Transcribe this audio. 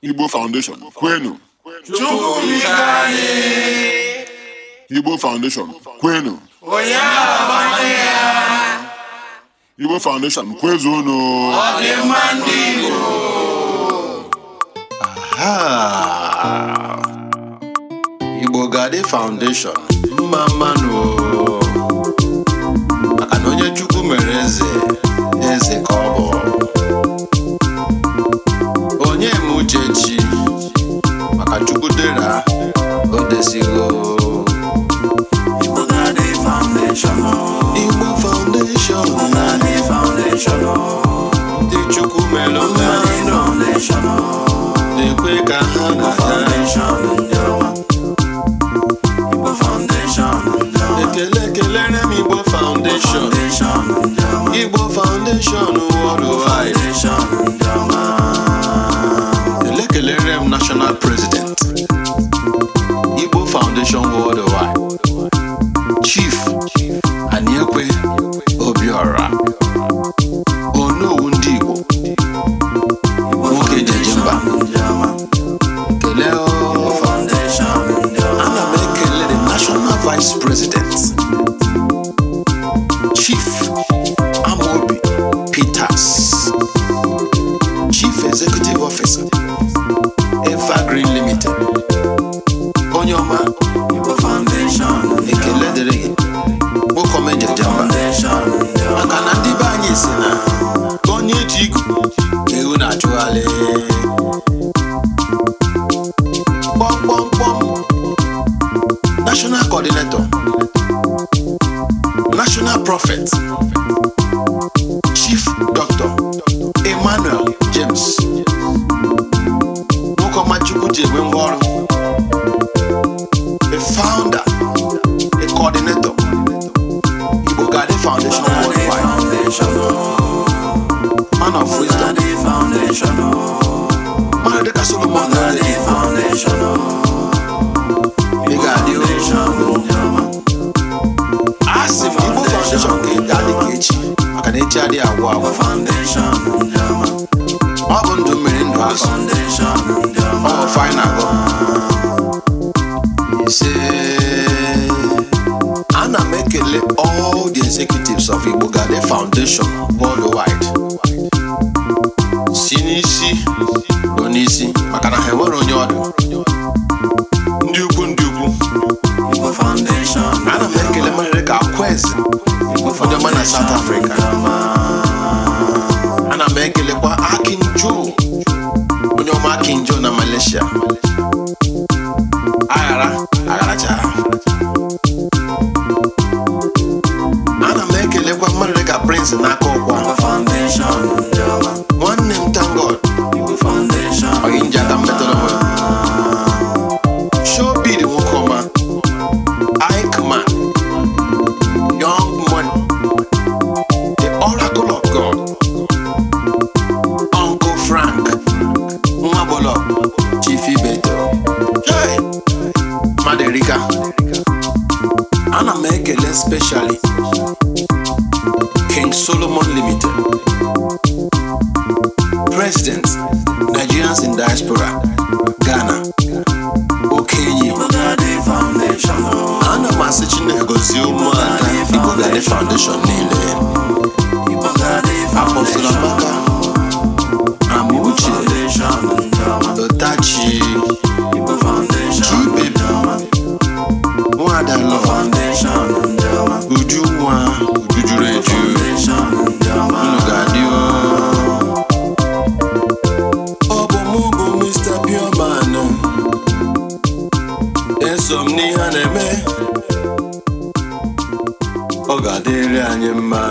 Igbo Foundation, Kwenu. Igbo Foundation, Kwenu. Igbo Foundation, Kwezunu. Aha! Igbo Gadi Foundation, Mama Nuo. together. Oh, go this foundation. Oh. foundation. foundation. Oh. foundation. foundation. foundation. foundation. unlimited. Onyoma, foundation, ekele dịrị gị, nwoke ọma eji eje mba. Maka na ndị be anyị si na ka onye eji igu ka ewu na-achụgharị. Kpọmkpọmkpọm, national coordinator, national prophet. Mother the castle, mother the foundation. Big foundation. As if you move foundation, get daddy kitchen. I can eat daddy a wow. Foundation. All undo me in the foundation. All fine ago. You say, Anna make all the executives of Igbo Gade Foundation worldwide. n'isi bụ n'isi maka na ha enwere onye ọdụ King Solomon Limited, President, Nigerians in Diaspora, Ghana, Okenye, Anna Masichin Egozio Mwaka, Igogade Foundation. ọ ga-adịrị anyị mma